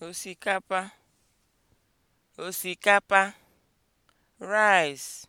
osikapa osikapa rice